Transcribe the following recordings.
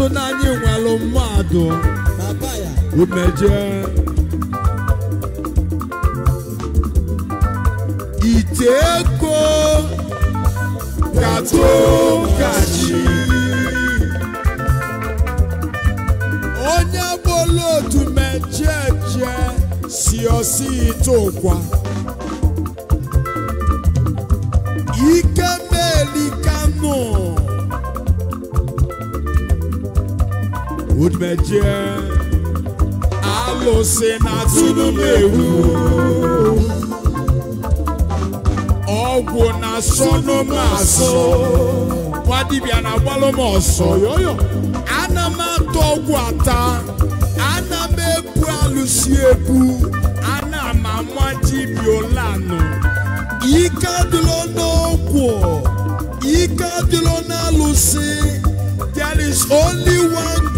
so na anyị nwelụ mmadụ umeje ite ego katụ kachi onye bụla otu mejeje si osi ite ụkwa mejie alụsị na-atụrụ m ewu ọgwụ na-asọnụ m asọ Wadibia na-agbalụ ọsọ yoyo ana m ata ọgwụ ata ana m ebu alụsị ebu ana m ama dibịa ole anọ ike adịla n'ọgwụ ike adịla n'alụsị there is only one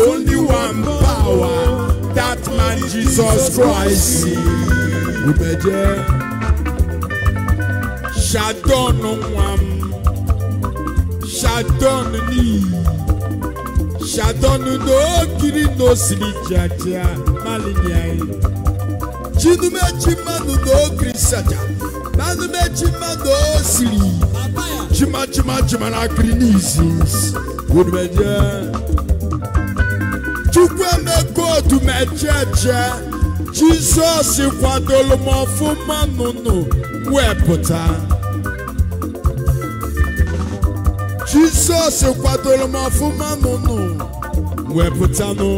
only one power that man Jesus Christ ubeje shadon nwam shadon ni shadon no kiri no siri jaja malinyai chinumechi manu no kiri saja manumechi manu osiri chima chima chima na kiri n'izu ubeje. tumejeje jizọs kwadolu m ọfụma wee wepụta jizọs kwadolu m ọfụma nụnụ wepụtanụ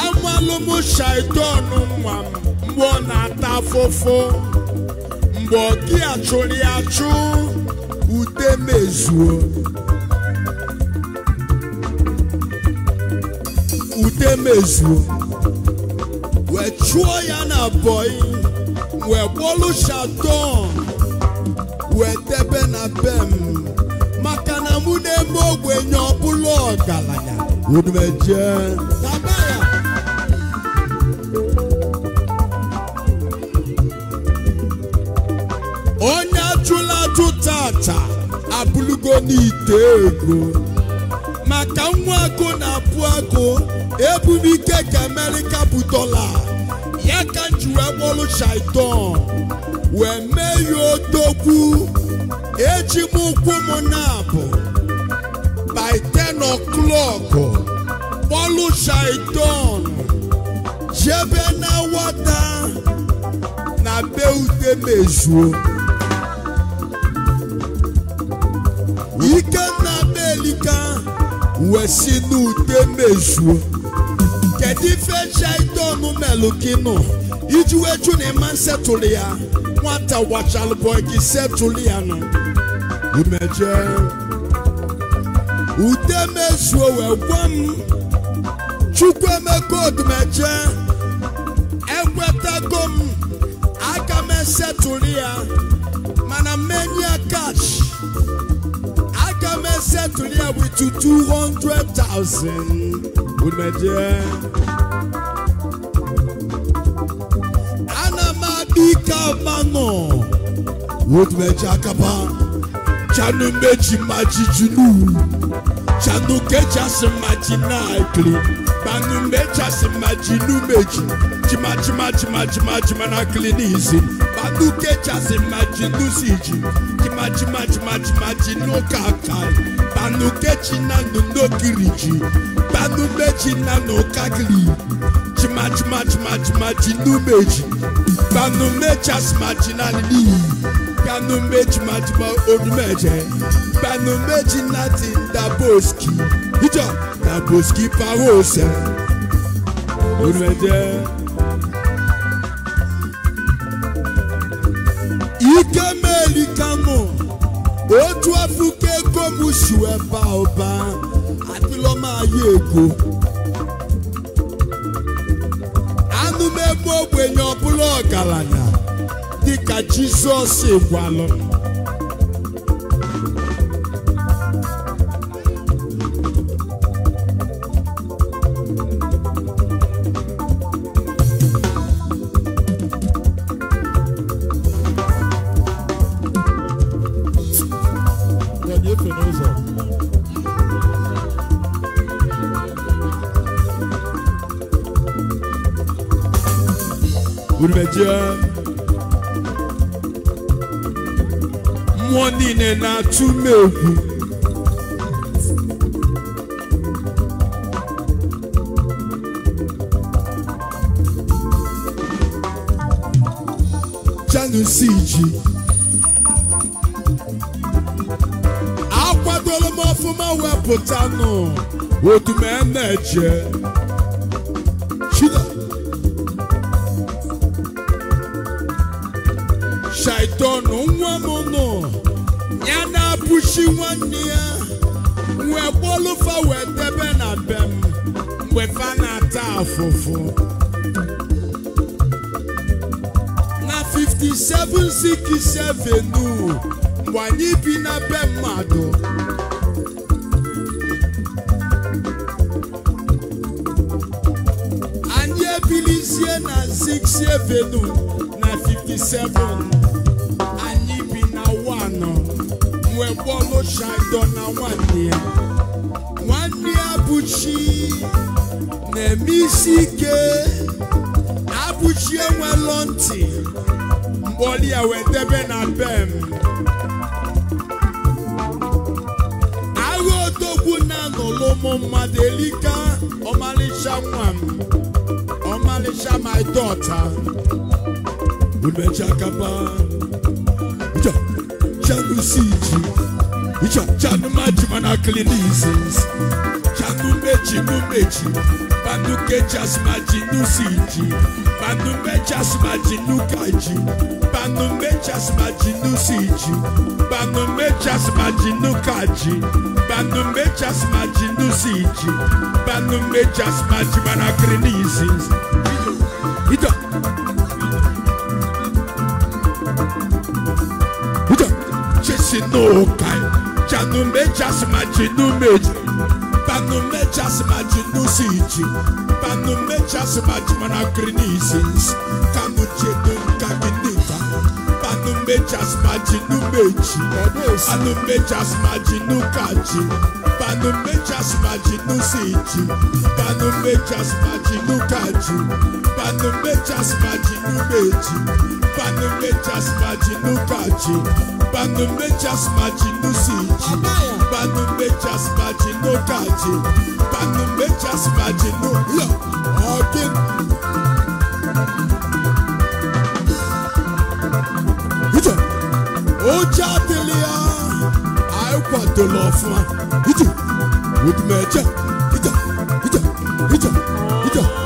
amalụ m shaitan nwa m mgbe ọ na-ata afụfụ mgbe ọ gị achụrụ ya achụ ude mezuo mezuo wee chụọ ya na bọị wee kpọlụ shaton wee debe na be m maka na mụ na-eme ogbenye ọbụla ọgaranya umeje onye ajụla ajụ tata abụlugo n'ite ego maka nwa agụ na-apụ agụ ebumike ka amerika bụ dọla ya ka m wee akpọrụ wee mee ya odogwu eji m ụkwụ m na-abụ by ten o'clock kpọrụ shaitan jebe na wata na be ute mezuo na elika wesi na n'ude mezuo kedu ife jidonu melukinu iji wee jụ na ịma nsetụlụ ya nwata wachalụbọ gị setụlụ ya nọ umeje ude mezuo wee gwa m chukwu emeka odumeje ekwetago m aka m esetụlụ ya mana menia kash aka m esetụlụ ya wit 200,000 umeje kamano wotumeji akaba chanu meji maji junu chanu ma kechasi maji naikli banu mechasi maji nu meji chima chima chima chima chima na klinizi banu ma maji nu siji chima chima chima chima chinu kakai banu kechi na nu ji. banu meji na nu kakli chima chima chima chima chinu meji Kanu mecha smaginality. Kanu mechi majima odumeje. Kanu mechi nati daboski. Ijo daboski parose. Odumeje. Ike meli kamo. Otu afuke gomusu eba ọba. Àti lọ́ máa yé èkó. Anú mẹ́gbọ́ ògbè yan bụrụ ọgaranya dịka Jizọs gwalụ jẹ. Mmụọ niile na-atụ m egwu. Janus iji. Akwadola m ọfụma wepụta nụ otu m na na 5767 mgbe anyị bi na be mmadụ anyị ebilizie na 6 avenue na 57 wee bọọlụ shaido na nwanne ya nwanne ya bụ chi na-eme isi ike na-abụchi enwelọ ntị mgbe ya wee debe na bem agha odogwu na-anọlụ ụmụ mmadụ elika ọmalịcha nwa m ọmalịcha my daughter umechakapa chanusiji icha chanumajimana clinizis Panumechi numechi, panukechi asmaji nusiji, panumechi asmaji nukaji, panumechi asmaji nusiji, panumechi asmaji nukaji, panumechi asmaji nusiji, panumechi asmaji manakrinisi. Ito. Ito. Ito. Chesi no kai, chanumechi asmaji numechi mechas imagine no mechas imagine anacronisis, camuche don't caginita, but no mechas imagine no mechi, and no mechas imagine no cachi, but no mechas imagine no sage, but no mechas no cachi, but no mechas imagine no mechi, but no mechas imagine no cachi, but no mechas no sage, but no mechas imagine no cachi. Back in Nature's Magic, no, look, Ìjọ, ó já délé á, àìpà tó lọ fún wa. Ìjọ, ó dùn mẹ́jẹ̀, ìjọ, ìjọ, ìjọ, ìjọ.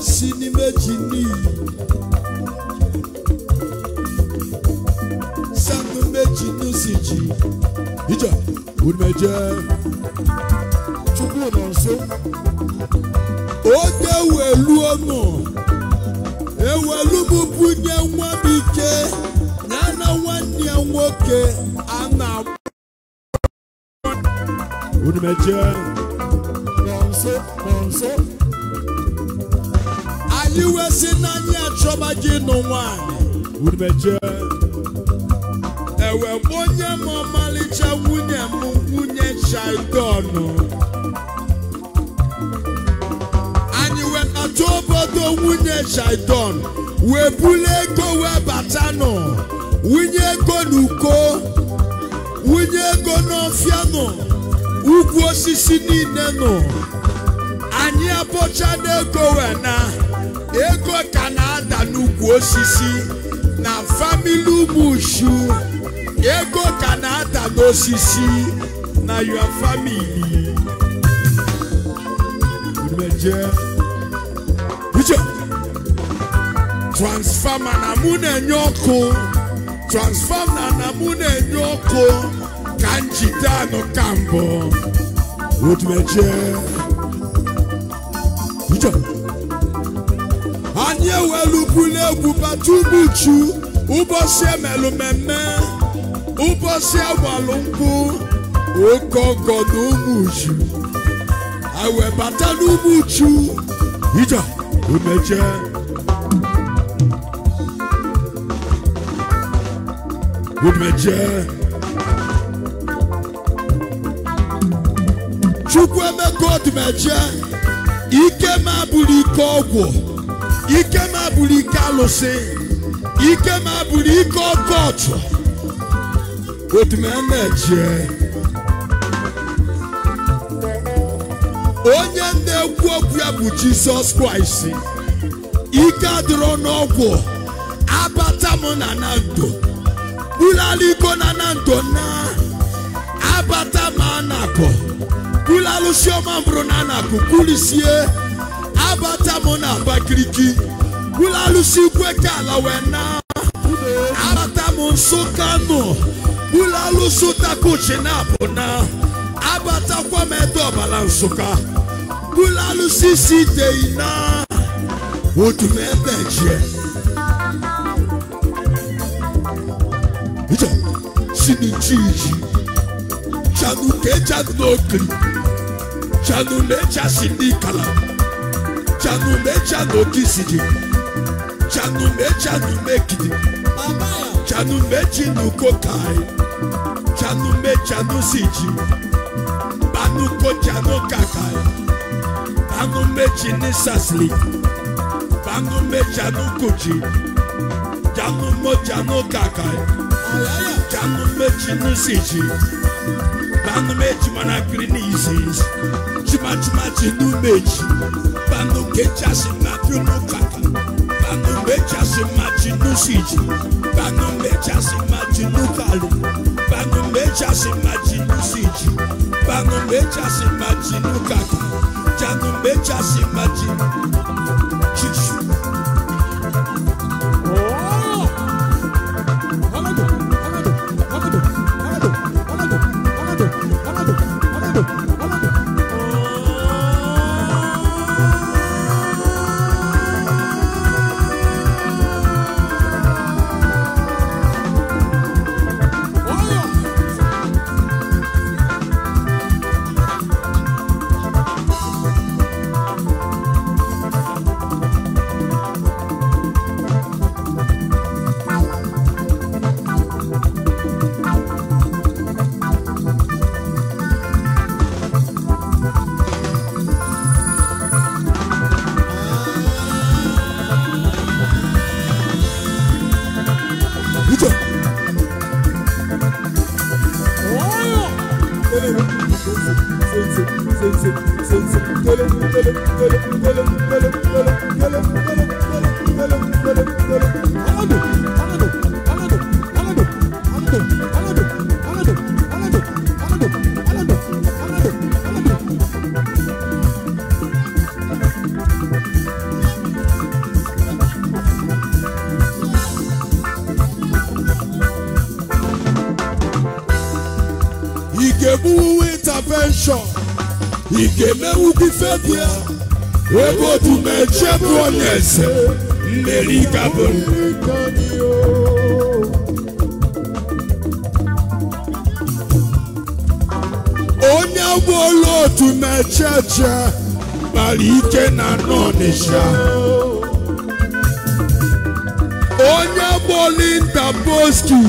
si n'ime ji n'iyi sanụ meji n'usi ije umeje chukwu nọ nso oge weluo nọ ewelu m bunye nwa m ike ya na nwanne ya nwoke a na-agba umeje nọ nso nọ nso iwe si n'anya achọba gị nụ nwanyị ewe bụ onye m ọmalịcha nwunye m nwunye chaidonụ anyị wetata obodo nwunye chaidon wee bulu ego wee batanụ wunye ego n'uko wunye ego n'ọfịa nọ ugwu osisi niile nọ anyị abọcha n'ego wena ego ka na-ada n'ukwu osisi na famili ụmụuchu ego ka na-ada n'osisi na your famili transfama na mụ na-enye ọkụ transfama na mụ na-enye ọkụ ka njide anụ ka mbụ otu eche anyị ewelukwu n'egwu batubu chu ụbọchị emelụ mmemme ụbọchị agbalụ nkwụ oke ọgọ na ụmụ uchu ewebata n'ụmụ uchu ija umeje umeje chukwu emeka ọdụmeje ike m bụrụ ike ọgwụ ike m bụrụ ike alụsị ike m bụrụ ike ọkọchụ otu m na-eje onye na-ekwu okwu ya bụ jizọs kraịst ike adịrọ n'ọgwụ abata m na na ndo ala iko na na ndụ na abata m anakọ kula lusioma mbrunana kukulisie abata mona bakiriki kula lusi kweka la wena, abata monsokano kula lusu takuchina bona abata kwameto balansuka kula lusi utume odumebeje ijo sinijiji Chanuleja n'okiri Chanuleja si n'ikala Chanuleja n'okisidi Chanuleja n'umekidi Chanuleji n'ukokai Chanuleja n'usiji Banukoja n'okakai Banumeji n'isasili Banumeja n'ukuji Chanumoja n'okakai Chanumeji n'usiji. banụ meji mana kiri n'izizi chimachimachi n'umeji banụ kechasị na pinụkaka banụ mechasị ma n'usiji banụ mechasị machi n'ukali banụ mechasị machi n'usiji banụ mechasị machi n'ukaka janụ mechasị machi chichi emewugwu ifebu ya ebe otu mechie bụ onye eze mmeri kabụ onye gbolu otu mecheche kpara ike na n'Ọnịsha onye gbolu intaposki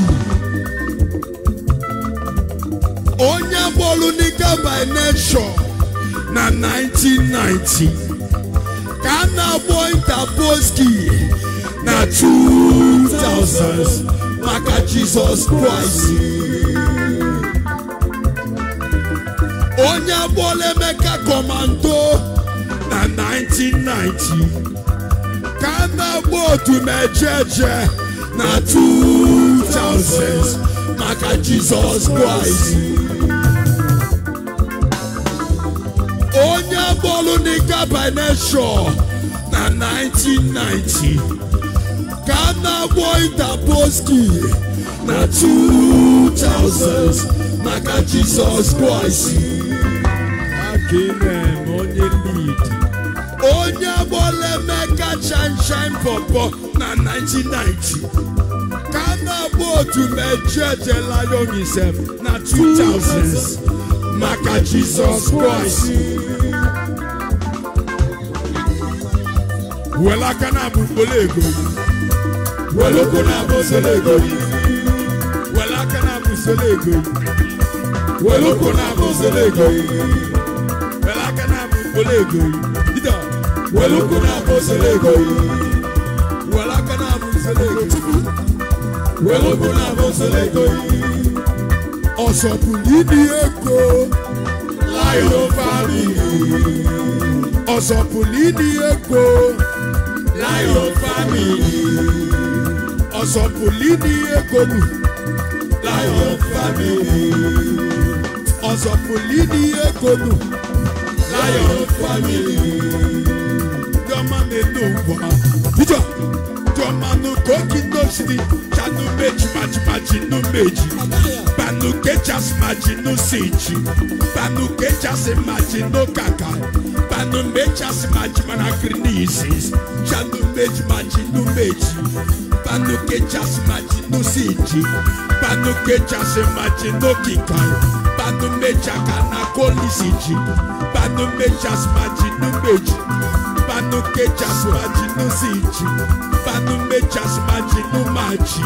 onye gbolu nika by Nation. na 1990 ka m na-agbọ interposki na 2000 maka Jizọs Kraịst onye agbọọla Emeka kọmando na 1990 ka m na-agbọ otu mejeje na 2000 maka Jizọs Kraịst Thessalonica by nature na 1990 ka na-agwọ Interposki na 2000 maka Jizọs Kraịst onye agbọla Emeka Shanshan Pọpọ na 1990 ka na-agba otu mejeje Lion Isem na 2000 maka Jizọs Kraịst were aka na-abụ ego were ụkwụ na-abụ ego were aka na-abụ ego were ụkwụ na-abụ ego were aka na-abụ ego were ụkwụ na-abụ ego were aka na-abụ ego were ụkwụ na-abụ ego ọsọ bụ ibi ego layo famili ọsọ bụ ịdị ego Lion family ọ̀sọ̀pùlì ní ègòmù Lion family ọ̀sọ̀pùlì ní ègòmù Lion family jọmọ nínú wà jíjọ jọmọ nù kókì nọ́ọ̀sì ni ṣàánú méjì màjìmàjì nù méjì. Mbanu kechas majinu sichi Mbanu kechas majinu kaka Mbanu mechas majimana krinisis Chanu mej maji meji Mbanu kechas majinu sichi Mbanu kechas mechaka na kolisichi Mbanu mechas Banu kechas majinu zici Banu mechas majinu maci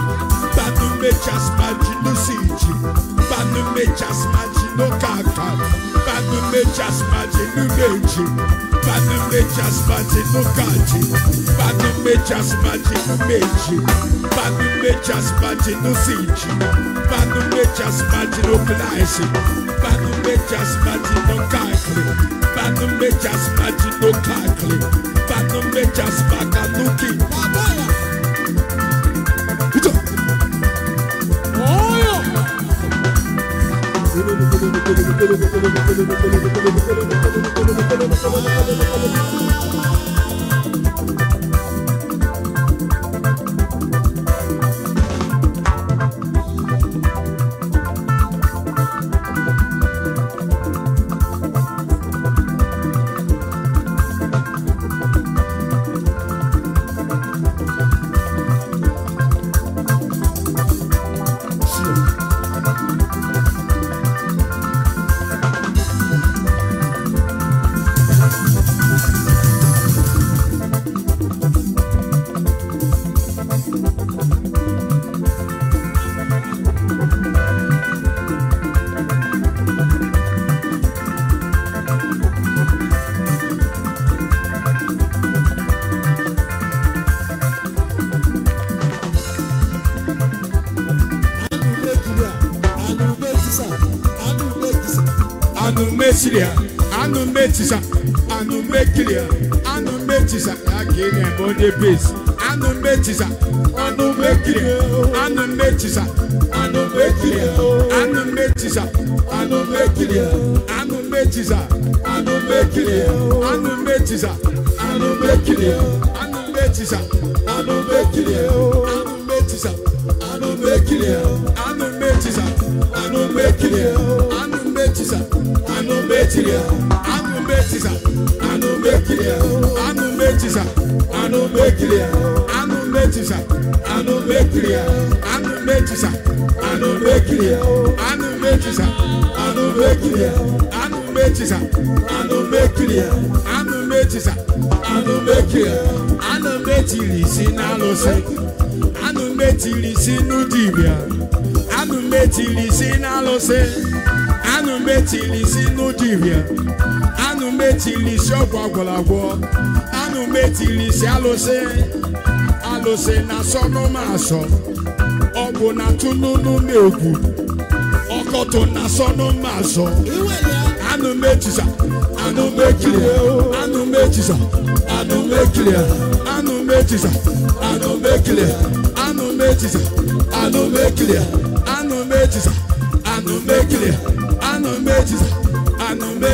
Banu mechas majinu zici Banu mechas majinu kaka Banu mechas majinu meji Banu mechas majinu kaji. Banu mechas majinu meji Banu mechas majinu zici Banu mechas majinu klaisi Badum bejas mati no kakli Badum bejas mati no kakli Badum bejas metisa anu mekilia anu metisa yake ne body base anu metisa anu mekilia anu metisa anu mekilia anu metisa anu mekilia anu metisa anu mekilia anu metisa anu mekilia anu metisa anu mekilia anu metisa anu mekilia anu metisa anu mekilia anu anụ betiri anụ betiza n'alụsị n'ụdị n'alụsị metili isi n'ụdịrịa anụ metili isi ọgwụ agwọrọagwọ anụ metili isi alụsị alụsị na asọnụma asọ ọgwụ na tụnụnụ na egwu ọkọtụ na asọnụma asọ anụ mechisa anụ mechiri anụ mechisa anụ mechiri anụ mechisa anụ mechiri anụ mechisa anụ mechiri anụ mechisa anụ mechiri ejis anụmekiri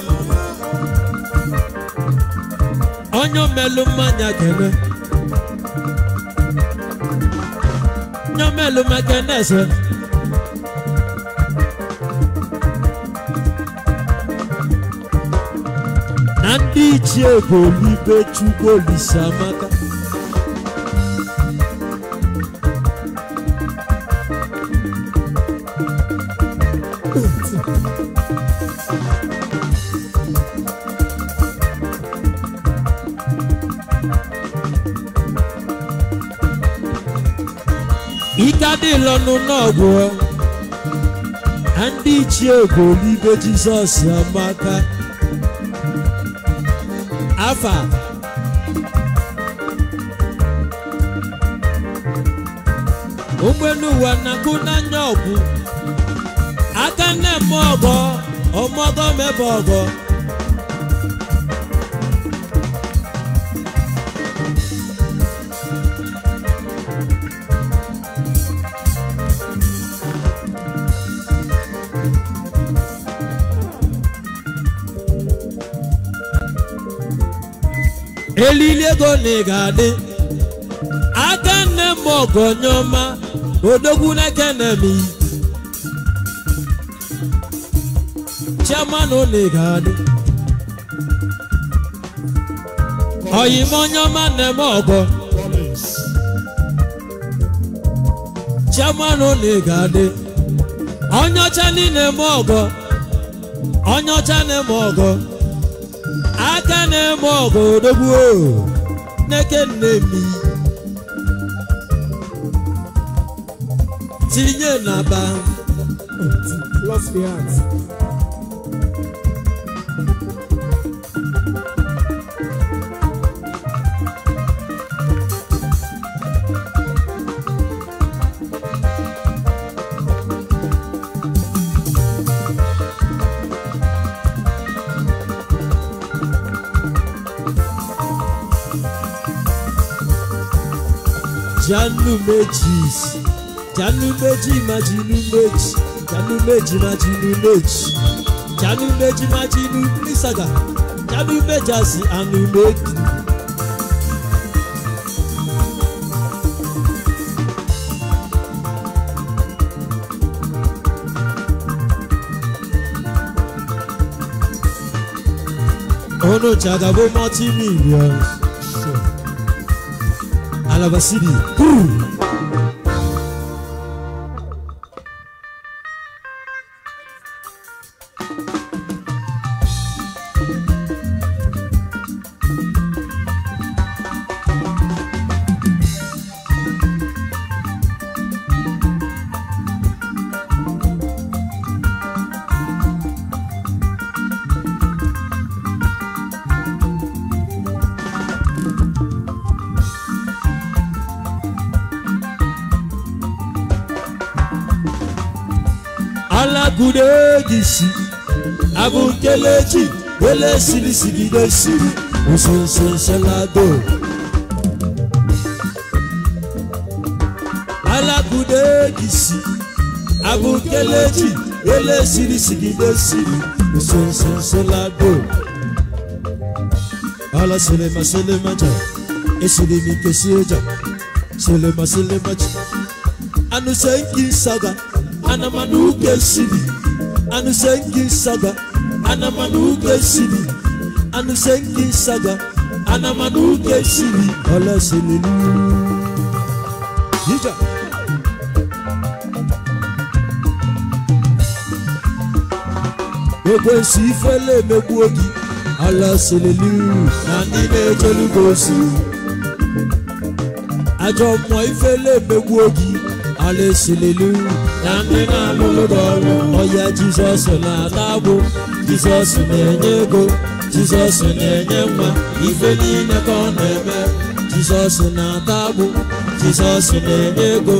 onye omelu mmanya kene onye omelu mmanya ese na ndị ichie bụ olibe chukwu olise amaka Thank you. ndị lọnụ n'ọgwụ na ndị ichie bụ olibe jizọs amaka afa ụgbọelu ụwa na-agụ n'anya ọgwụ aka nne m ọgọ ọmọgọ mebe ọgọ elili ego na ị ga-adị aka nne m ọgọnyọma odogwu na m Chiamanụ na ị ga-adị oyimonyọma nne m ọgọ chairman na ị ga-adị onye ọcha niile m onye ọcha na nne m ọgụ o n'eke nne mi tinye na ba Janu meji, Janu meji, má jinú méjì Janu méjì má jinú meji, Janu méjì má jinú nísàgà Janu meji, àsì ànú méjì. Ono chagabo multi millions. arabasiri isi abụ nkelechi ele sirisigide siri usensenselado alakudegisi abụ nkelechi ele sirisigide siri usensenselado ala selema selemaja esiri m ike si eja selema selema se anụsenki saga anamana uke siri anusengi saga anamanuke sini anusengi saga anamanuke sini ọlọsẹlẹlu yíjà. gbogbo èsì ìfẹ́lẹ́ mẹ́gbú ogi ọlọsẹlẹlu na nílé tolúgbòsì àjọmọ̀ ìfẹ́lẹ́ mẹ́gbú ogi. Hallelujah, na ndị na-alụrụ ọrụ ọya Jizọs na-ata Jizọs na-enye ego Jizọs na-enye nwa ife niile ka ọ na-eme Jizọs na-ata Jizọs na-enye ego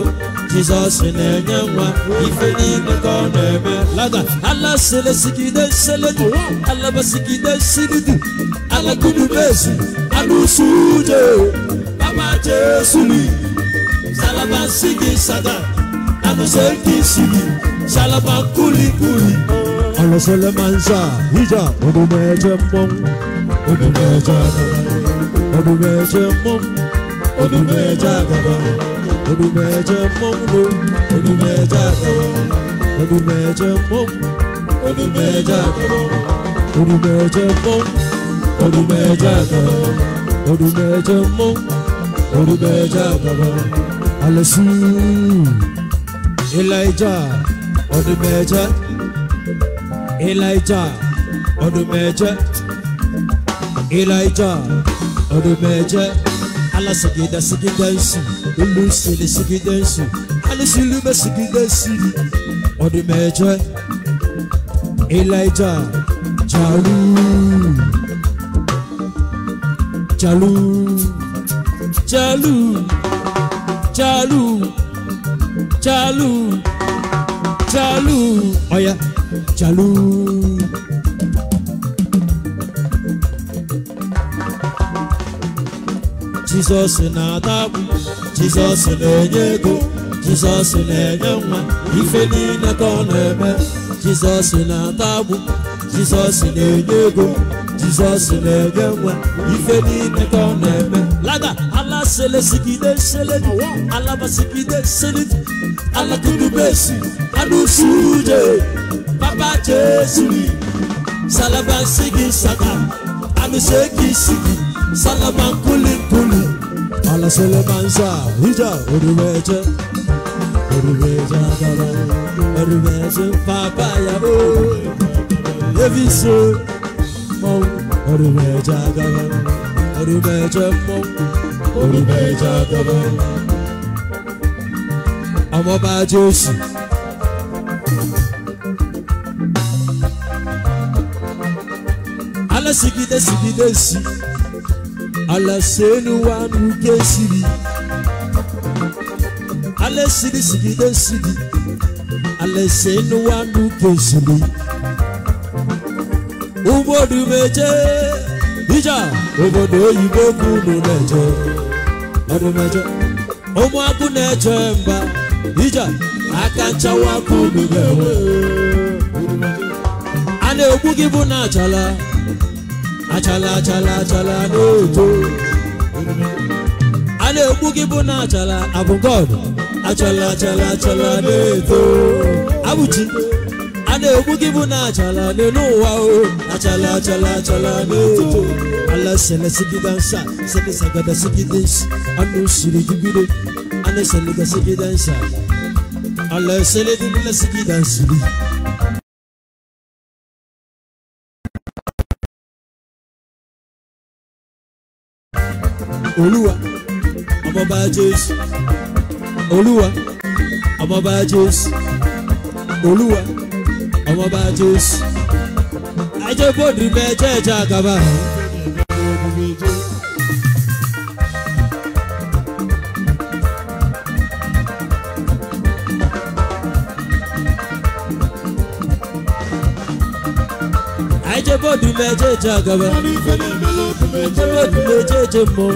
Jizọs na-enye nwa ife niile ka ọ na-eme laga ala selesigide seledu alabasigide silidu alagudu bezu alụsuje baba Jesu Shalaba sigi sada Anose ki sigi Shalaba kuli kuli Anose le manza Hija Odume eche mong Odume eche mong Odume eche mong Odume eche gaba Odume eche mong Odume eche gaba Odume eche mong Odume eche gaba Odume eche mong Odume eche gaba Odume eche mong Odume eche gaba Alison Elijah ọdún mẹ́jọ Elijah ọdún mẹ́jọ Elijah ọdún mẹ́jọ alasigida sigida nsi olusele sigida nsi alisilube sigida nsi ọdún mẹ́jọ Elijah jalu jalu jalu. chalu chalu chalu ọ̀yà chalu. Jesus na-adagbu Jesus na-enye ego Jizọs na-enye nwa ife niile ka ọ na-eme Jesus na-adagbu Jesus na-enye ego Jizọs na-enye nwa ife niile ka ọ na-eme sele de sele alaba de sele alakudu besi adusuje baba Jésù ni salaba sigi saka amiseki sigi salaba kuli kuli ala sele banza wija oruweje oduweje adaba oduweje baba yabo leviso mo oruweje agaba oruweje mo olùbẹ̀ Jákọ́bù. ọmọ bá Jésù. ala sigide sigide si ala senu wa nuke siri ala siri sigide siri ala senu wa nuke siri obodo meje ija obodo oyibo kunu na je. ụmụakwụ na-eje mba ije aka nchawa ka ga-enwe a na-egbu gị bụ na achala achala achala achala na-eto a na-egbu gị bụ na achala abụ achala achala achala na-eto abụchi a na-egbu gị bụ na achala n'elu ụwa o achala achala achala na-eto ala sɛlɛ sigi dansa sɛlɛ sagada sigi dansa anu siri jibire ala sɛlɛ ka sigi dansa ala sɛlɛ dibila sigi dansiri. olúwa ọmọọba jésù olúwa ọmọọba jésù olúwa ọmọọba jésù ajẹ́bọ̀dì mẹ́jẹ̀ẹ̀jẹ̀ àgàbà omijé. Ajẹ́bọ̀dù méjèèjì àgàbà. Ajẹ́bọ̀dù méjèèjì mọ̀.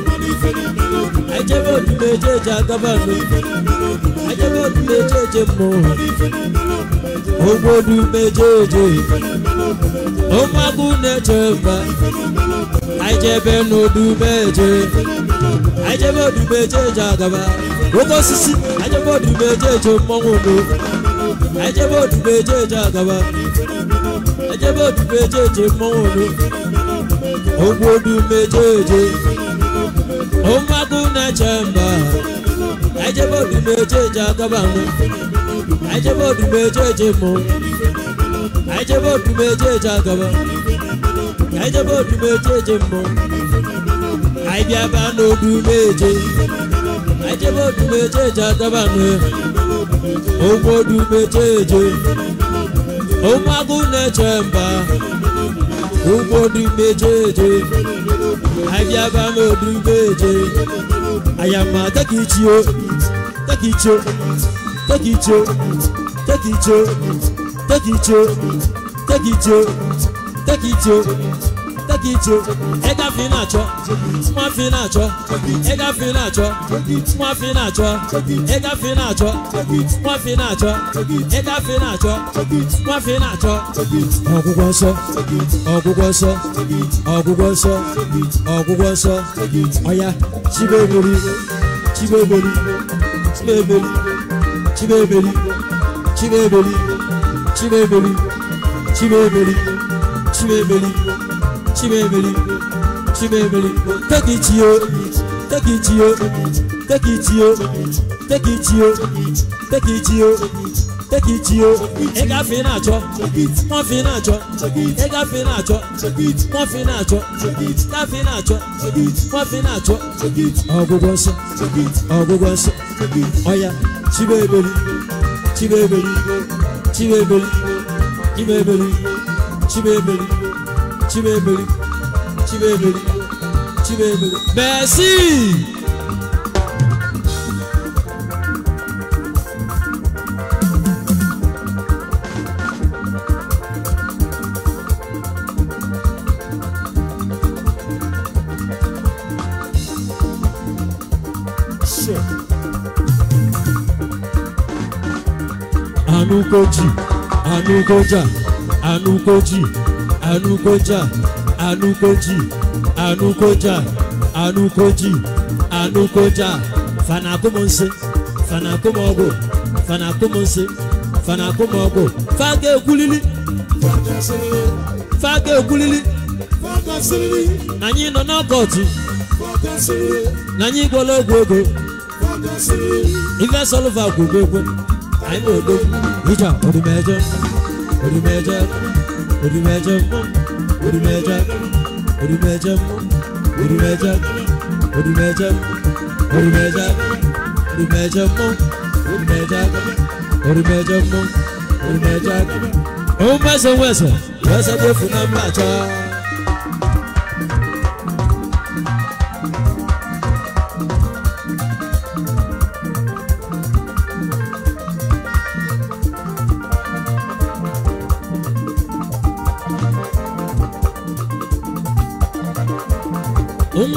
Ajẹ́bọ̀dù méjèèjì àgàbà mi. Ajẹ́bọ̀dù méjèèjì mọ̀. Ogbodu méjèèjì. Ó mágún nẹ́jọba. anyị jebe n'odubeje anyị jebe odubeje eji agaba oke osisi anyị jebe odubeje eji mmọnwụ odo anyị jebe odubeje eji agaba anyị jebe odubeje eji mmọnwụ odo ogwu odubeje eje ụmụaka na-eche mba anyị jebe odubeje eji agaba nụ anyị jebe odubeje eji mmọnwụ anyị jebe odubeje eji agaba anyị jebe odumeje eje mbụ anyị bịaba n'odumeje anyị jebe odumeje eje adaba ụmụ odumeje eje ụmụ agụ na-eche mba ụmụ odumeje eje anyị bịaba n'odumeje ayama tekichio tekichio teki tekichio teki take it yo take it yo ega fi na achọ nwa fi na achọ ega fi na achọ nwa fi na achọ ega fi na achọ nwa fi na achọ ega fi na achọ nwa fi na achọ ọgwụgwọ nsọ ọgwụgwọ nsọ ọgwụgwọ nsọ ọgwụgwọ nsọ ọya chibeberi chibeberi chibeberi chibeberi chibeberi chibeberi chibeberi chibebeligo chibebeligo chibebeligo take it yo na-achọ nwa na-achọ na-achọ na-achọ ọgwụgwọ nsọ ọgwụgwọ nsọ ọya chibebeligo chibebeligo chibebeligo chibebele chibebele chibebele merci. Anukoji, Anukoja, Anukoji. anukoja anukoji anukoja anukoji anukoja fana fana fana fanakumọgwụ fana fanakumọgwụ faga ekwulili faga ekwulili na anyị nọ n'ọkọtụ na anyị gwọla ogwu ego ife sọlva gwụgo egwe anyị na odo ija odumejọ odumejọ ഒരു മേജമ്മ ഒരു മേജാക്കം ഒരു മേജമ്മ ഒരു മേജാക്കം ഒരു മേജം ഒരു മേജാക്കം ഒരു മേജമ്മ ഒരു മേജാക്കം ഒരു മേജമ്മ ഒരു മേജാക്കം ഓ മേസം വേസം വേസത്തെ ഫുനം മാച്ചാ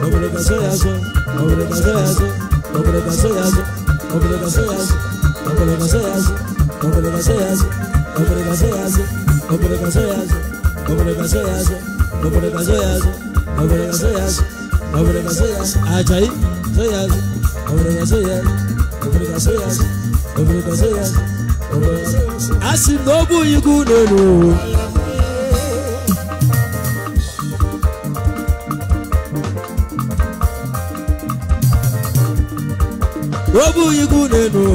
obrigação é azul, obrigação é azul, obrigação é azul, obrigação é azul, obrigação é azul, obrigação é azul, obrigação é azul, obrigação é azul, obrigação é azul, obrigação é azul, obrigação é azul, obrigação é azul, ajaí, sou azul, obrigação é azul, obrigação é azul, obrigação é azul, obrigação é azul, assim novo obụghị ibu n'elu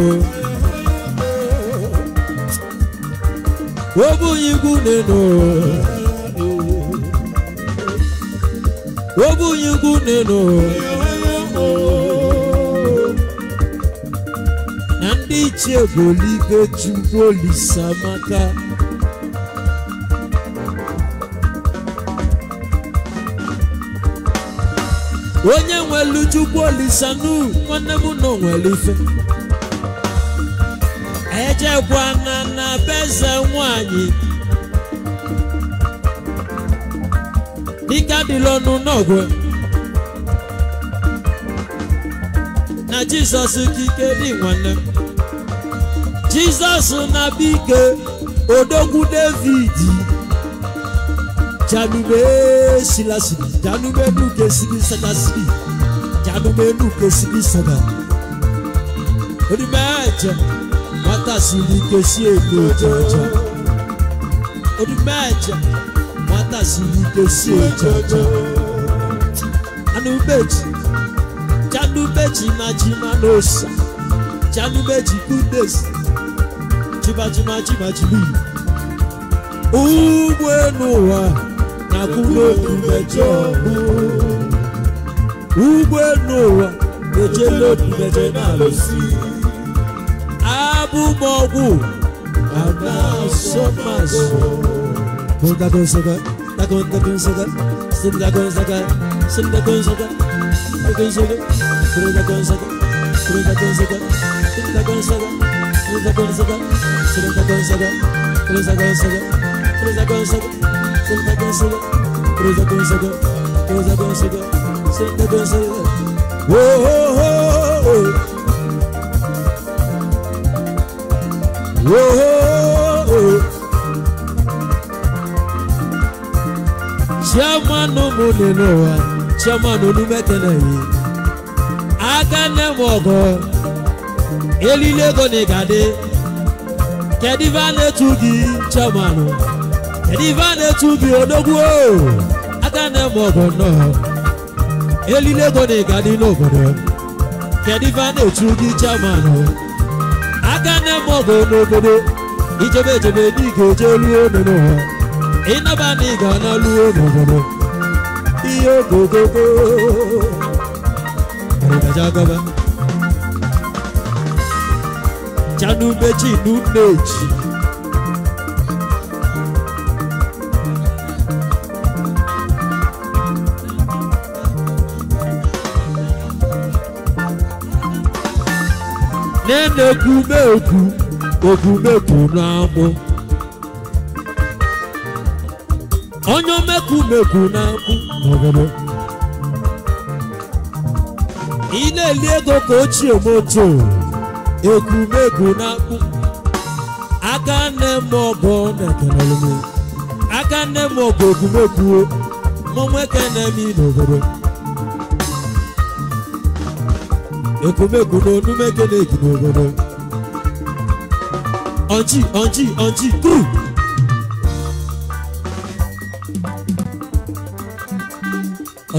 obụghị ibu n'elu obụghị ibu n'elu na ndị ichie bụ olibe chukwu olisamaka onye nwere chukwu olisanu nwanne m na onwere ife ejekwana na beze nwanyị dịka dịla ọnụ n'ọgwụ na jizọs kike dị nwanne m jizọs na bike odogwu david janube eshilasi janumenu kesibi sadasi janumenu kesibi sada onimẹjẹ matasili kesi eno jaja onimẹjẹ matasili kesi jaja anubeji janubeji majimanosa janubeji kudesi jibajimajimajimi ugbo enu wa. a k u r ụ o b i mejọ ụ g b e l u a ejela obi meje n a l ụ s i abụ m ọ g w anasomasụ Dago Nsoga, Dago Dago Nsoga, Sin Dago Nsoga, Sin Dago Nsoga, Dago Nsoga, Sin Dago Nsoga, Sin Dago Nsoga, Sin Dago Nsoga, Sin Dago Nsoga, Sin Dago Nsoga, Sin Dago Nsoga, Sin Dago Nsoga. Senta dança, cruza dança, cruza dança, senta dança. Oh, oh, oh, oh. Oh, oh, oh. oh Chama no monenoa, chama no numetenayi. Aka ne mogo, elilego ne gade. Kediva ne tugi, chama no. ediva na-etu bi odogwu aka na-eme ọgọ nnọọ elile ego na ịga dị n'obodo kediva na-etu gị chairman aka na-eme ọgọ n'obodo ijebe ejebe ga eje luo n'ụwa ịnaba na ịga na luo n'obodo ihe ogogogo gọba chanumechinu na-ekumekwu okumekwu na-amụ onye omekumekwu na-amụ ị na-eli ego ka ochie moto ekumekwu na akpụ aka nne m ọbụ na-ekenere m aka nne m ọbụ okumekwu mụ nwoke na-eme n'obodo ekwomegwu n'onu megene egi n'obodo ọjị ọjị ọjị kru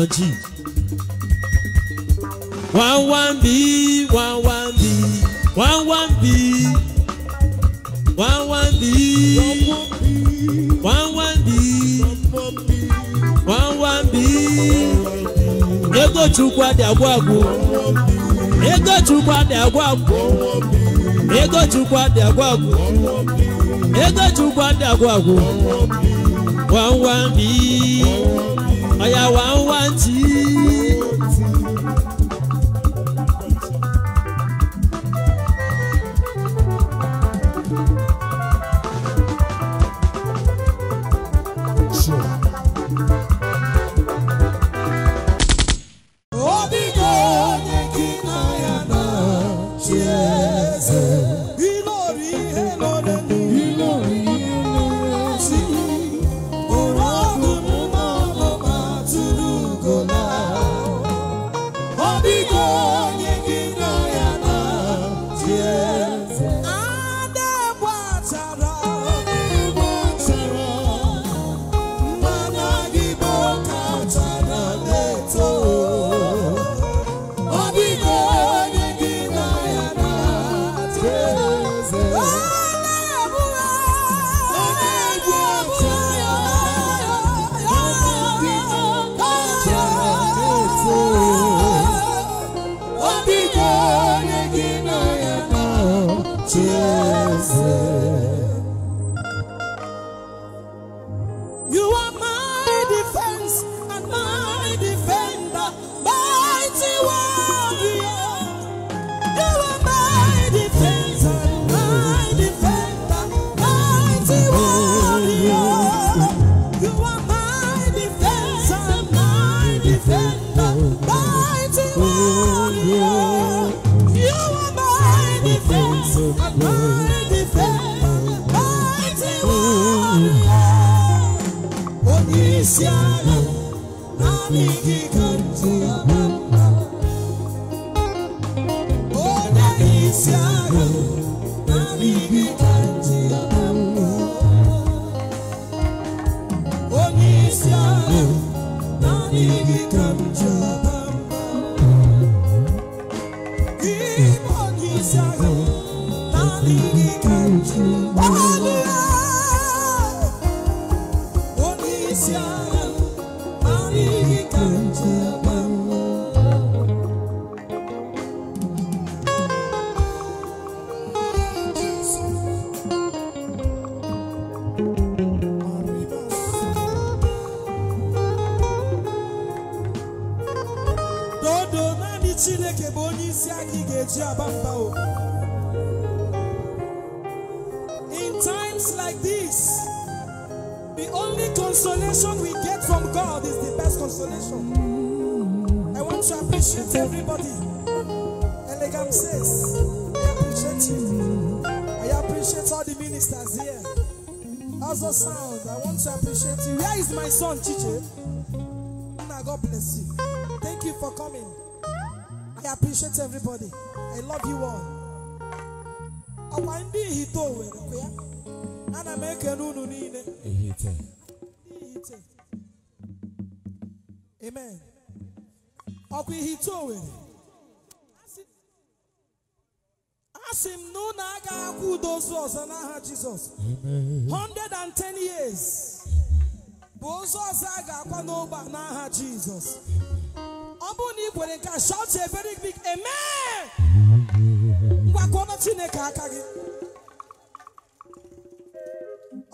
ọjị wawambi wawambi wawambi wawambi wawambi wawambi ego chukwu adị agwụ agwụ Egochukwu adị agwa agwụ Ego adị agwa agwụ Egochukwu adị agwa agwụ wanwan bi ọya wanwan tii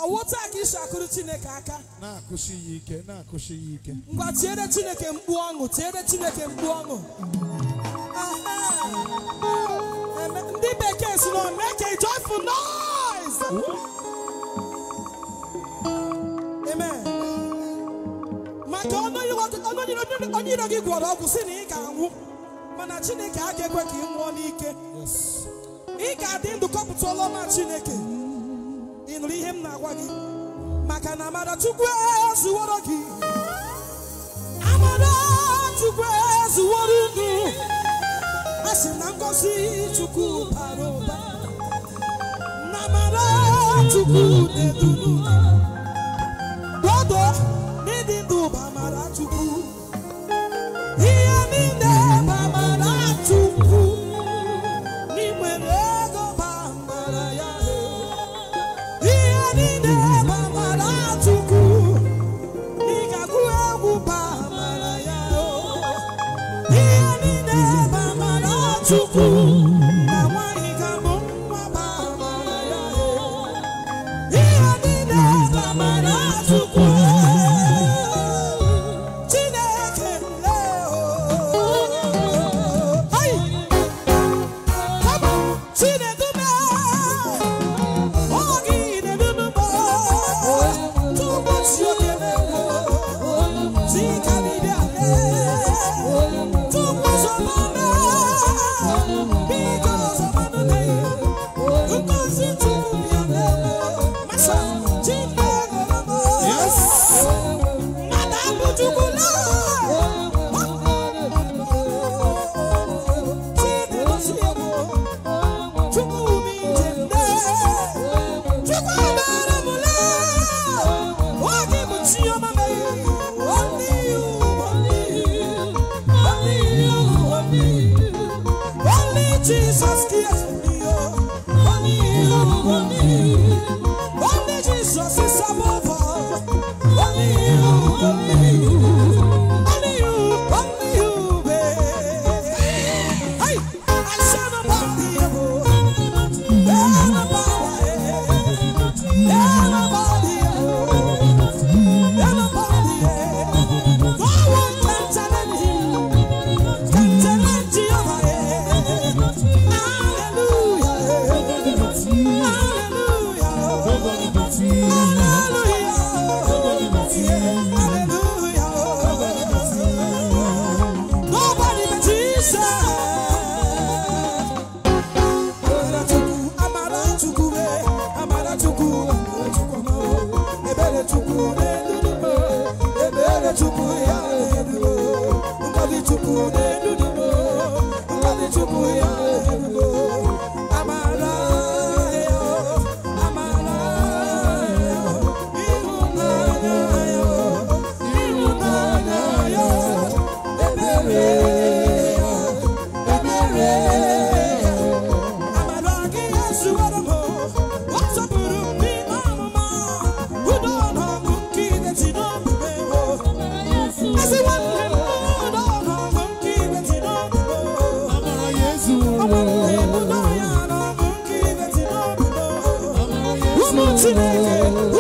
ọwụ taa ka akụrụ chineke aka na-akụsi ya ike na-akụsi ya ike ngwa tiere chineke mkpu ọṅụ tiere chineke mkpu ọṅụ ndị bekee si na make a joyful noise amen maka onye iro gị gwọrọ ọgwụ si na ị ga-anwụ mana chineke a ga-ekwe ka ị nwụọ n'ike ị ga-adị ndụ kọpụta ọlọma chineke ịnụrụ ihe na wagi, makana maka na amara chukwu ezuworo gị amara chukwu ezuworo unu a sị na ngọzi chukwu bara dodo Tonight.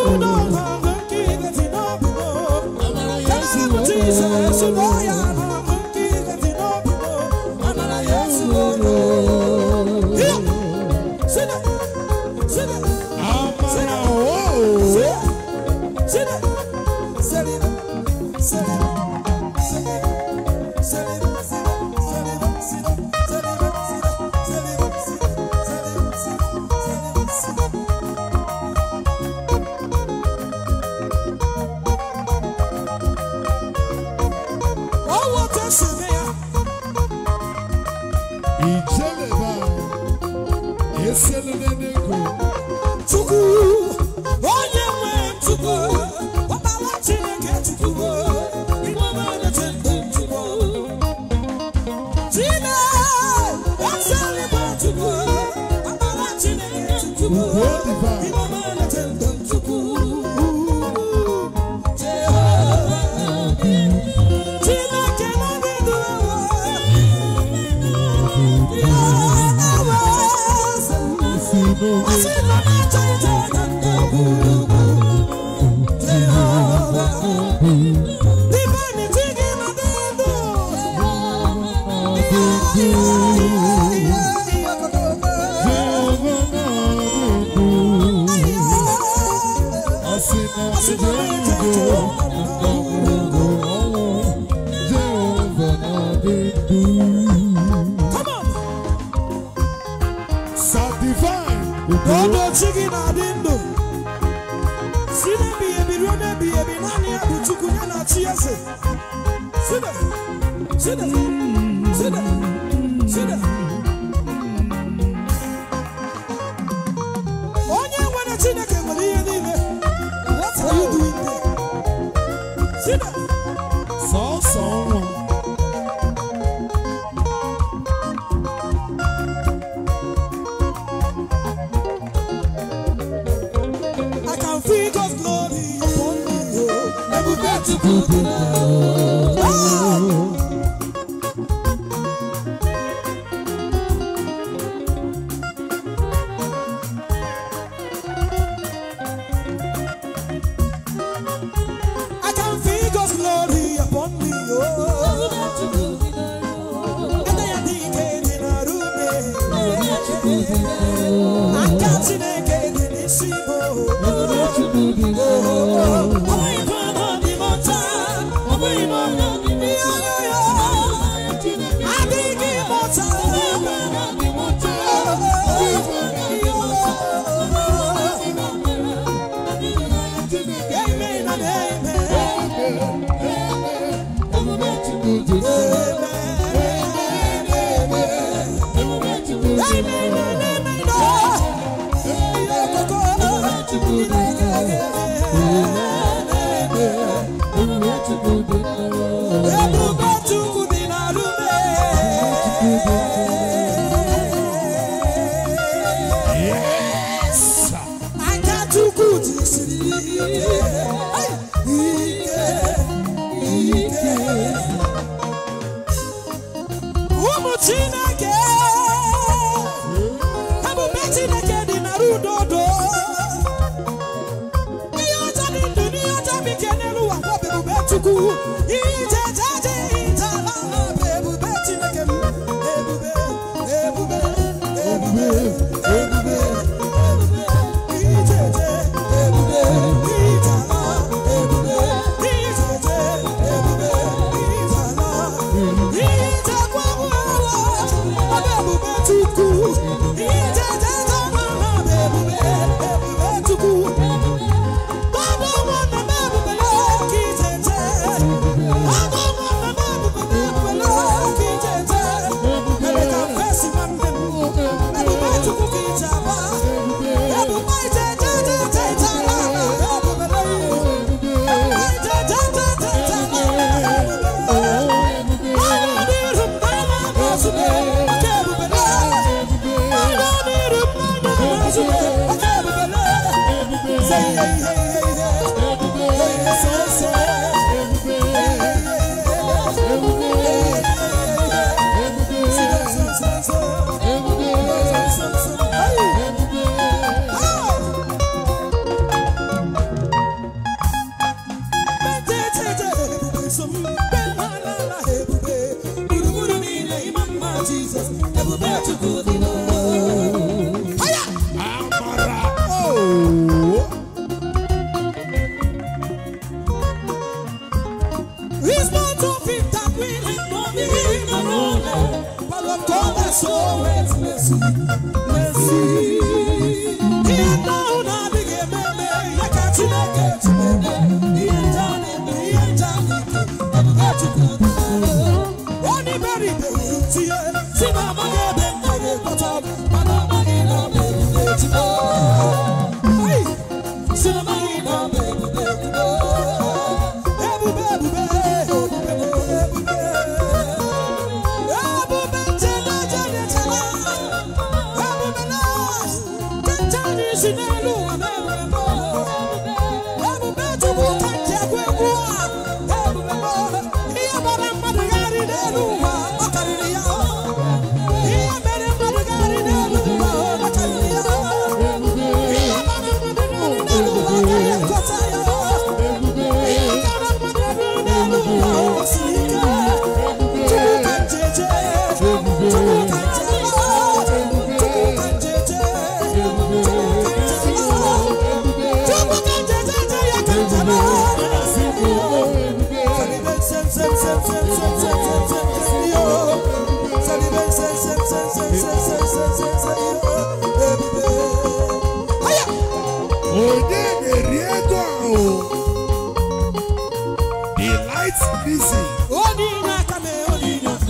Thank you.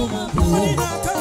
Come on, come on, come on.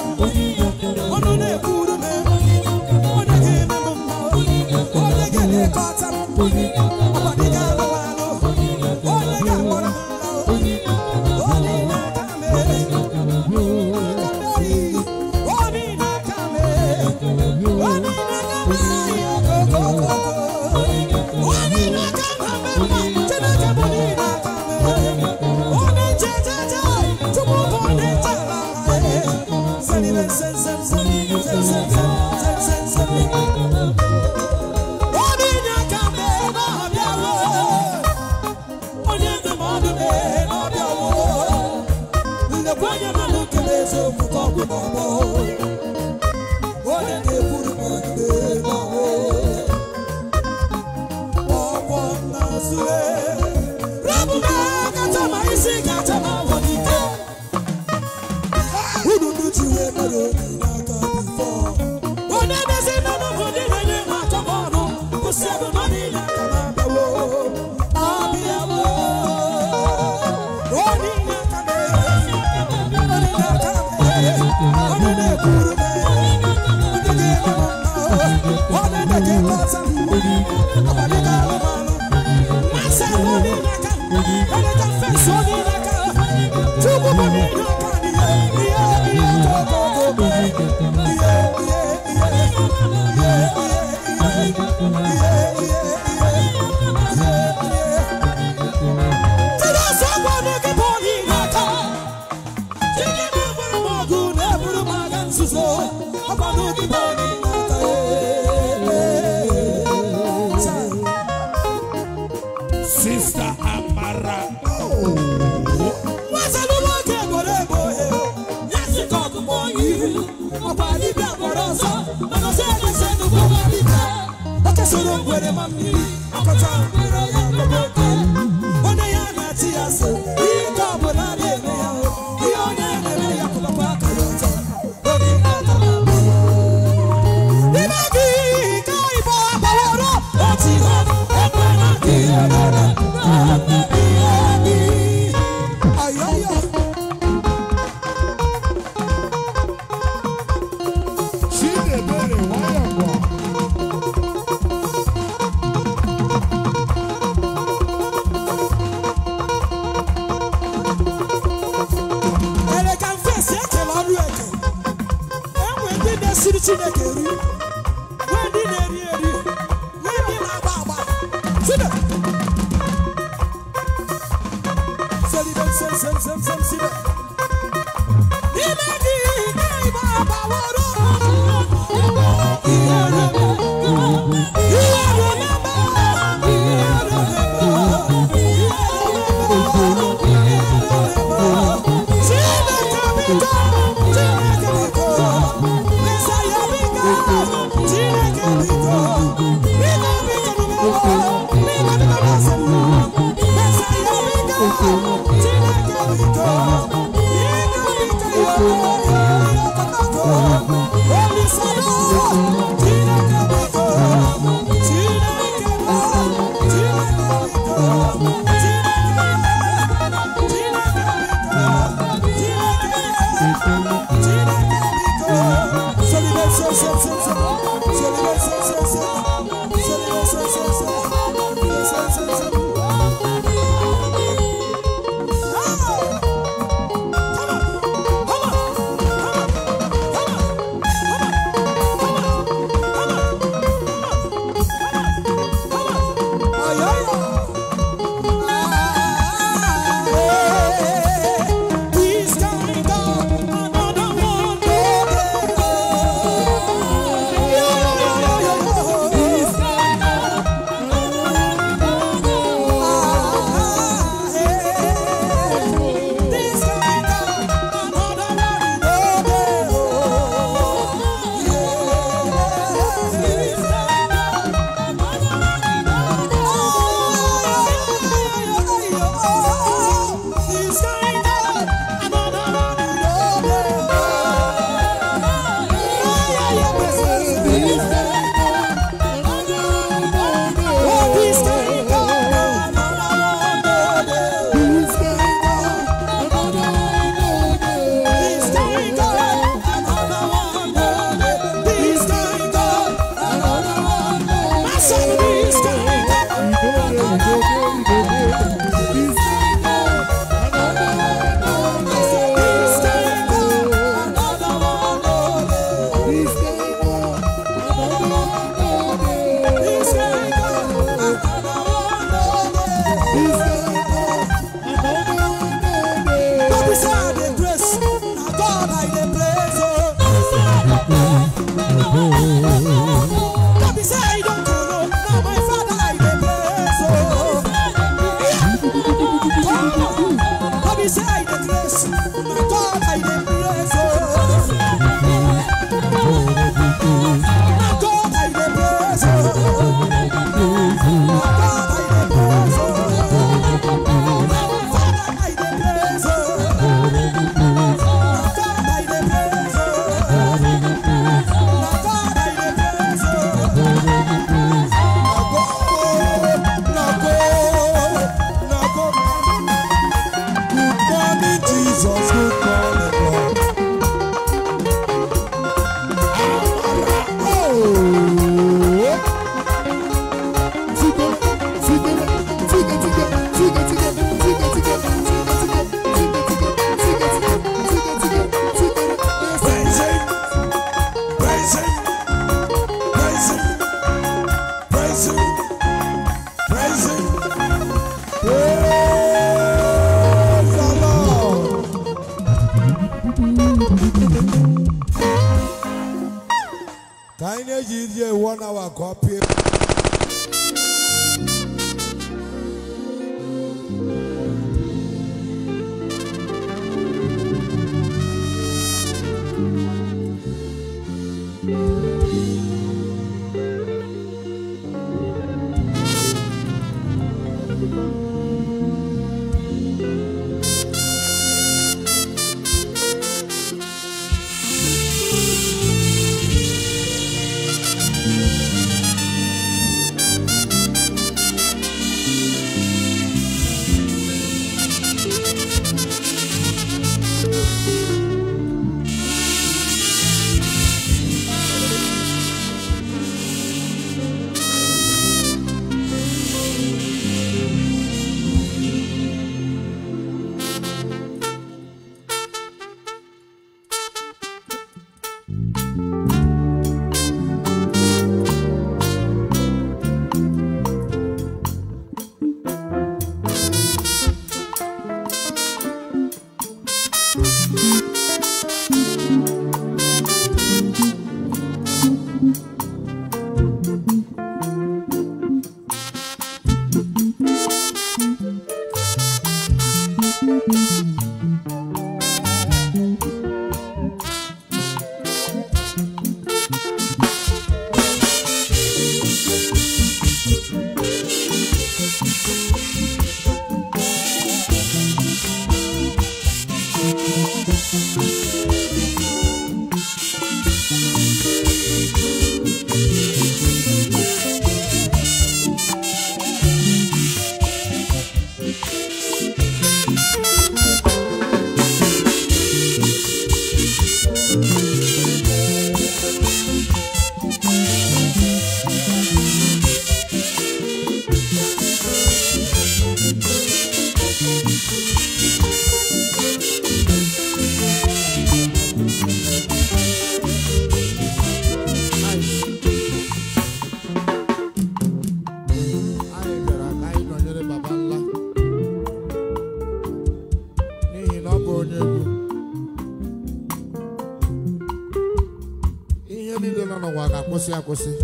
公司。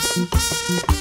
Thank you.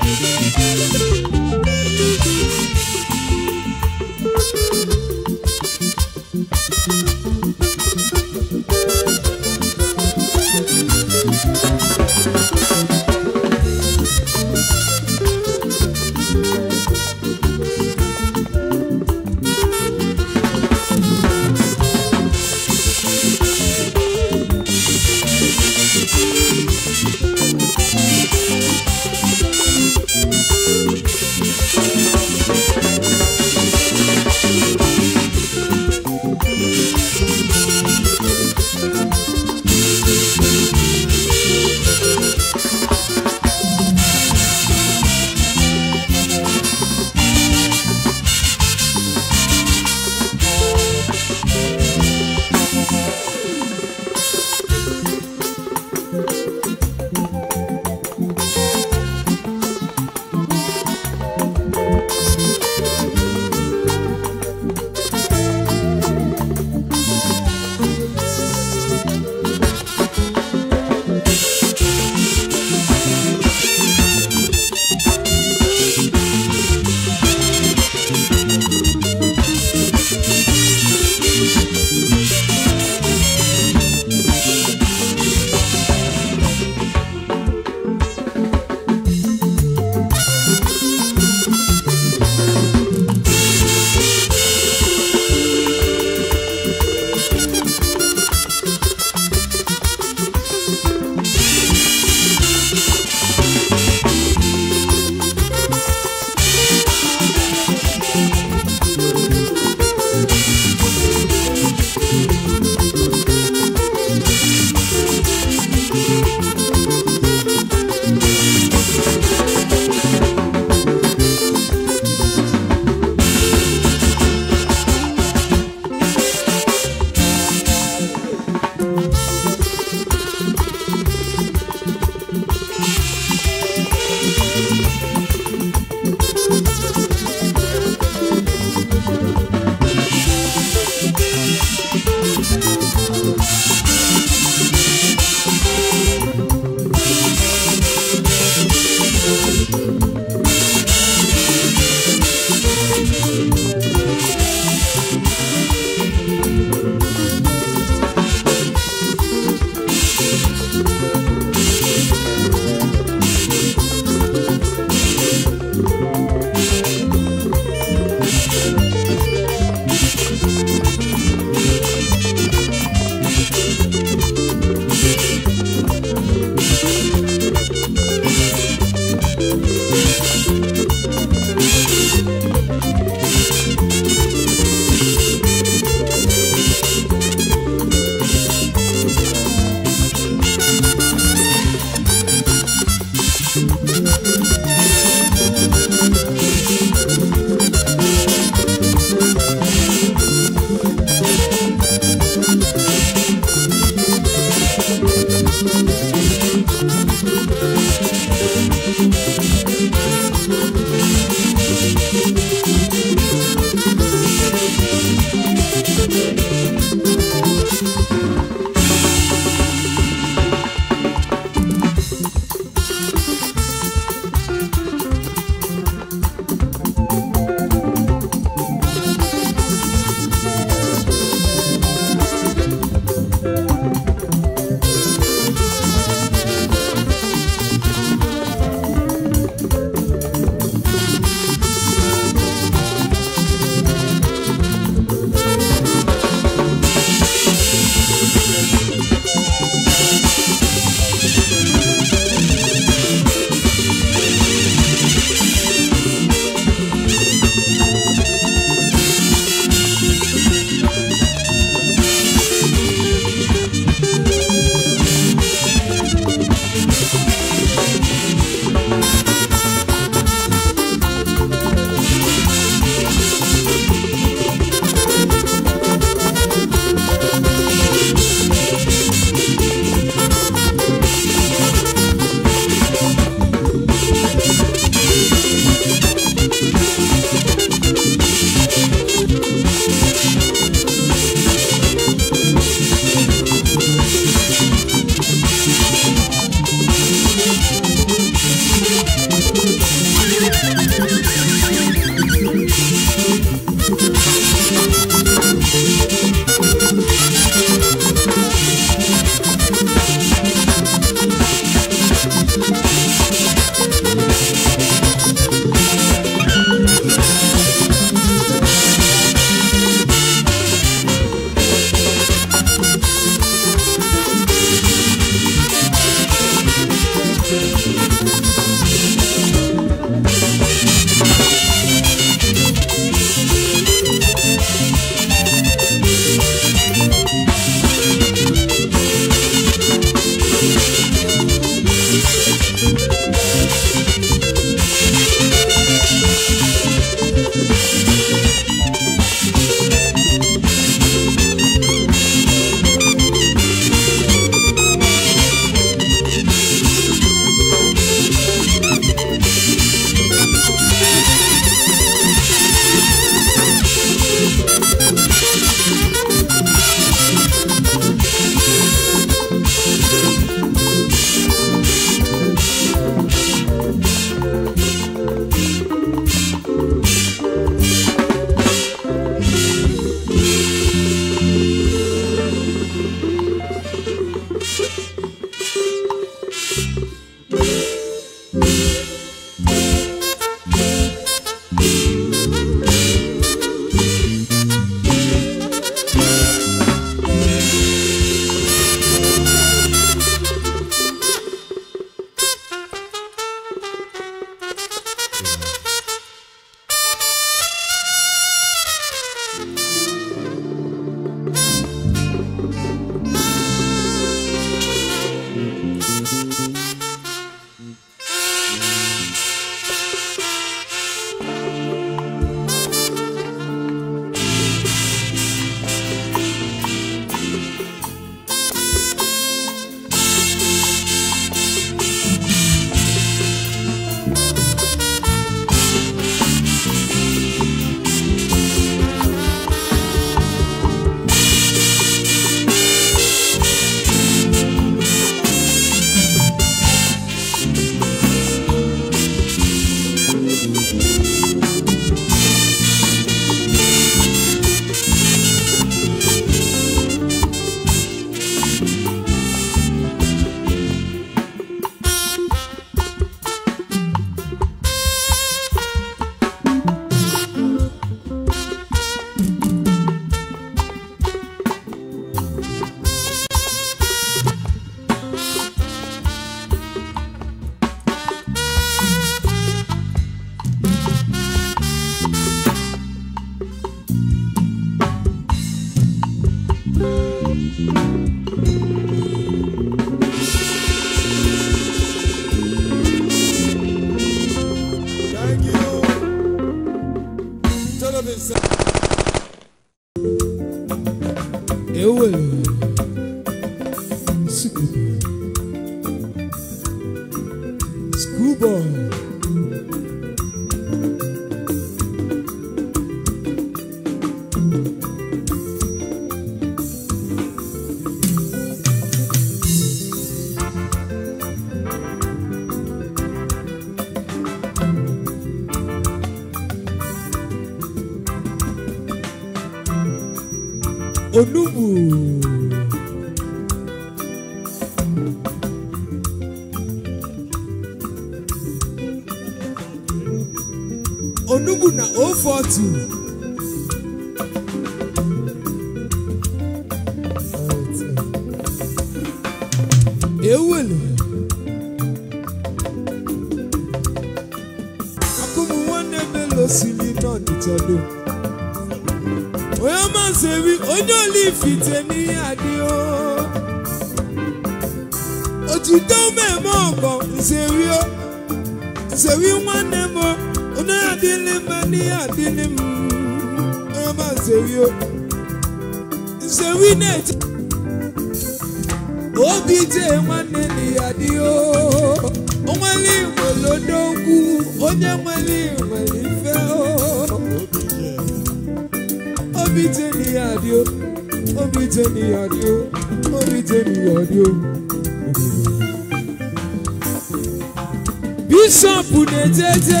bishọp na-ejeje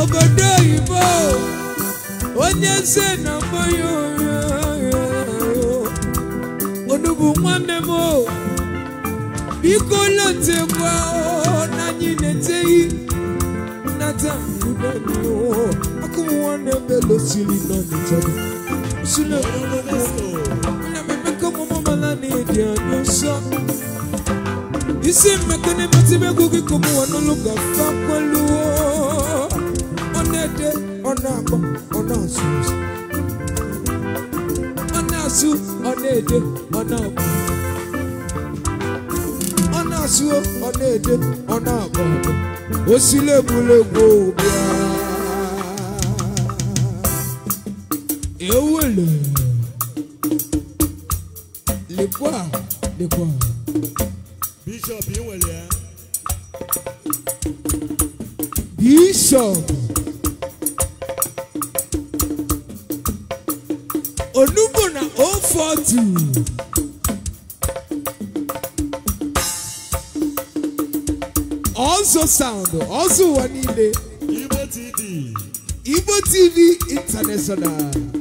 obodo oyibo onye nze na mmanya onugbu nwanne m biko lote n'anyị na anyị na-eteghị nnata akụm nwanne m belosiri nọ n'ịchọrọ nna m emeka ọmụmụ mala na-edi anya nsọ isimba kene matibekuki kumuwa noluga fakwaluwo onede onabo onazuza onazu onede onabo onazu onede onabo osilegulegwo bia ewele lekwa lekwa. sound also one in the TV Igbo TV International.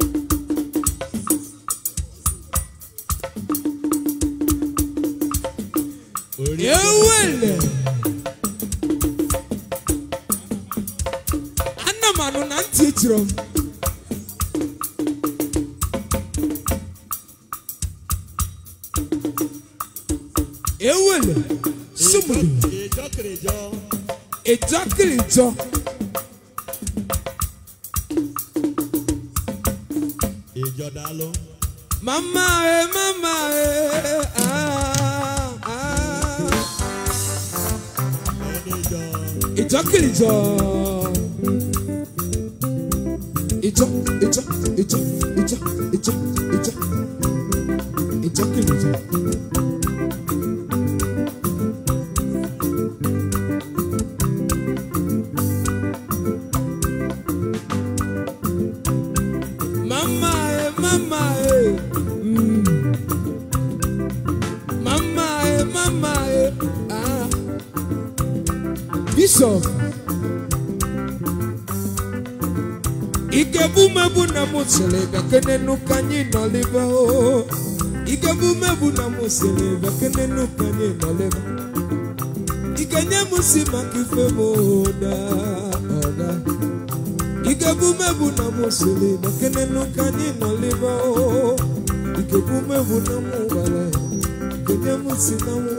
siri maka nenu kanye nalema ikenye musi maka ife m ụda ọda ikebumebu na m siri maka nenu kanye nalema ikebumebu na m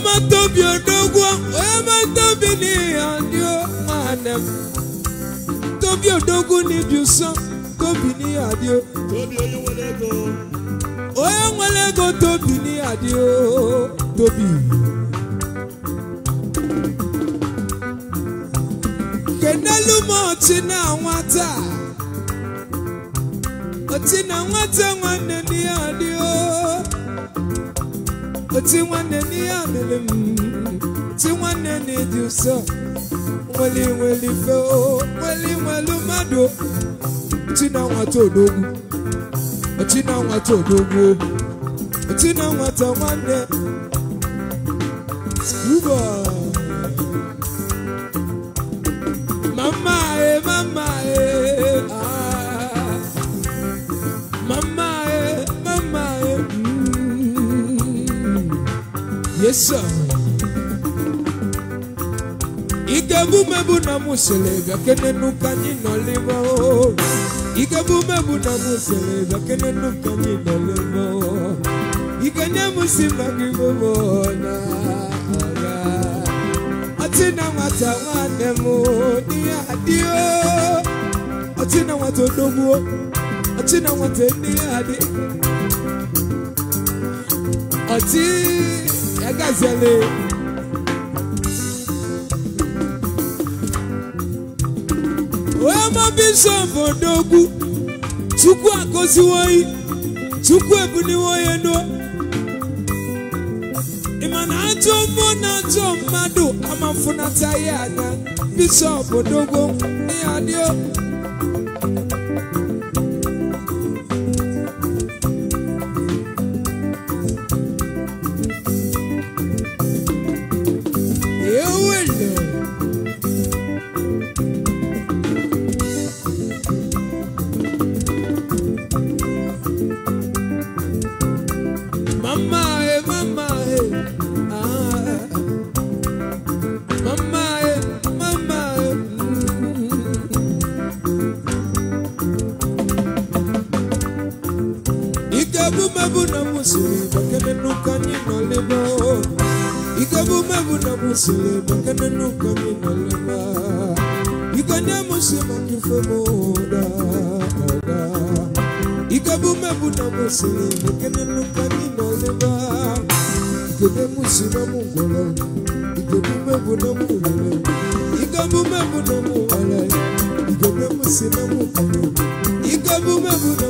omatobi odogwo onye matobi n'ihi ndị nwanne m tobi odogwu n'ibi ụsọ tobi n'ihi adịo onye nwere ego tobi n'ihi adịo tobi kenelu m ọchị na nwata ọchị na nwata nwanne n'ihe oti nwanne n'ihe amịrị m ti nwanne na-edi ụsọ nwere nwere fe nweli nwere mmadụ oti na nwata odogwu oti na nwata odogwu oti na nwata nwanne yeso igebumebu na muselega kenenu kanyi noliba igebumebu na muselega kenenu kanyi noliba ikenye musimangi mubona atina nwata nwanne m diya adịo atina nwata odogbuo atina nwata nne ya adị ọtị agazele omabisobodo ogwu chukwu agoziwoyi chukwu ebuniwoye nu ịmana ajọ mmụọ na ajọ mmadụ amafunata ya anya bishọp odogwu ya dio sile bakana nukani malama buna bakana malama mungola buna buna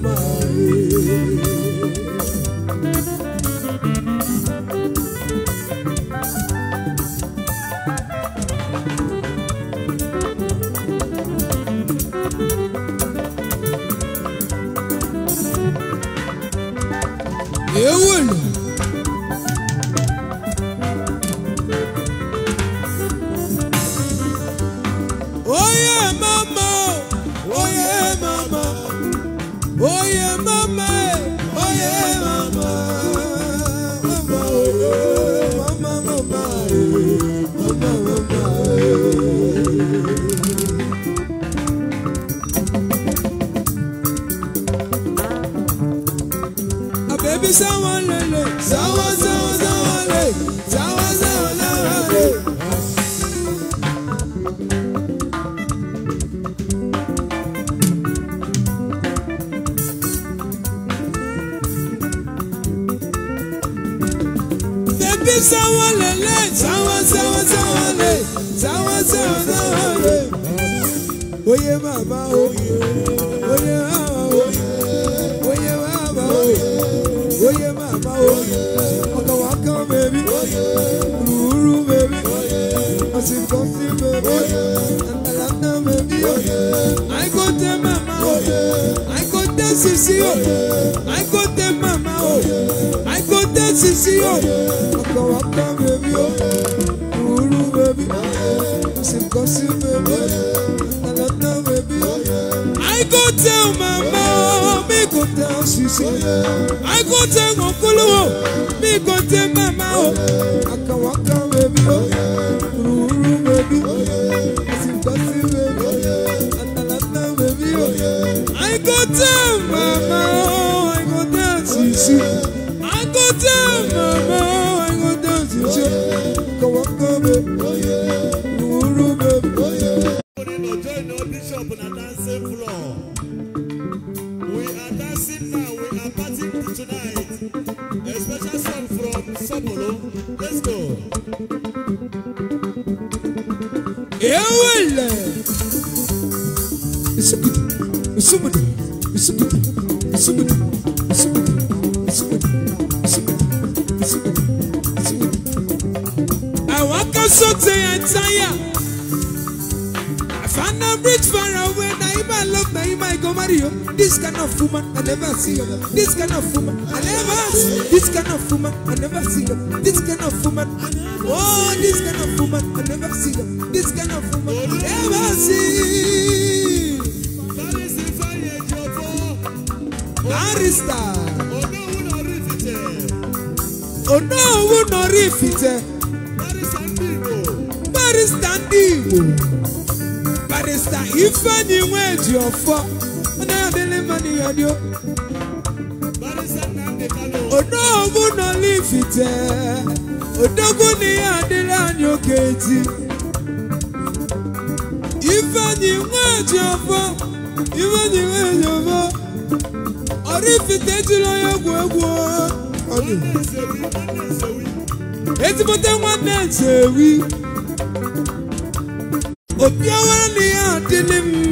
my ni ó. Odogun na lifite, odogun ni adira ni oke eti. Ifeanyi nweji ọfọ, ifeanyi nweji ọfọ. Orifite jụrụ ya egwu egwu. Ezigbote nwanne nsewi. Obi awara na ya adịlị m.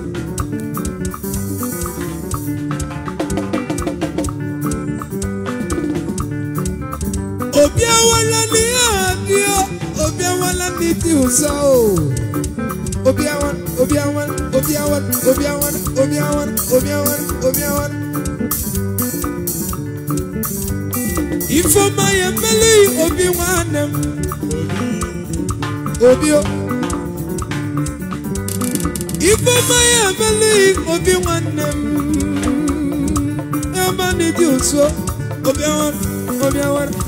awala ni abio obi awala ni ti usa o obi awala obi awala obi awala obi awala obi awala obi awala obi awala. Ifoma ya meli obi nwannem obi o. ma ya meli obi nwannem ebe na-eji otu obi awara obi awara.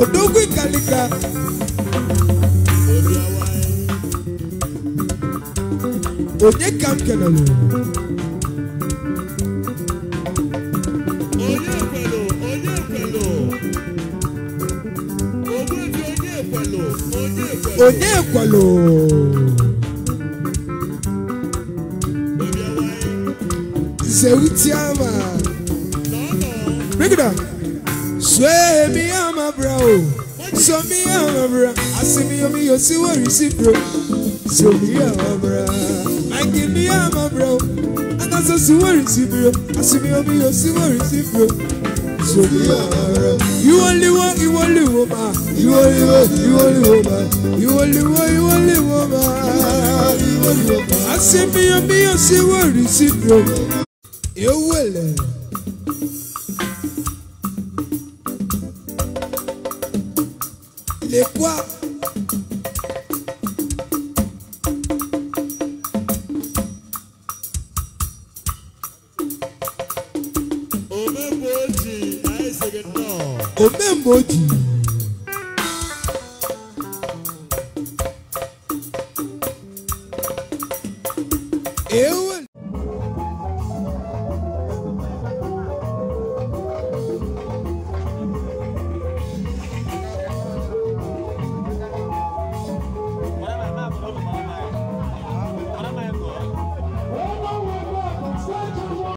odogwu ikalika onye ka m kelere onye ekwelo Seutiama. Bring it up. Sway me, I'm a bro. So me, I'm a bro. I see me, I'm a see where you see, bro. So me, I'm a bro. I give me, I'm a bro. And that's a see where you see, bro. I see me, I'm a see where you see, bro. So me, I'm a bro. You only want, you only woman. You only want, you only woman. You only want, you only woman. I see me, I'm a see where you see, bro.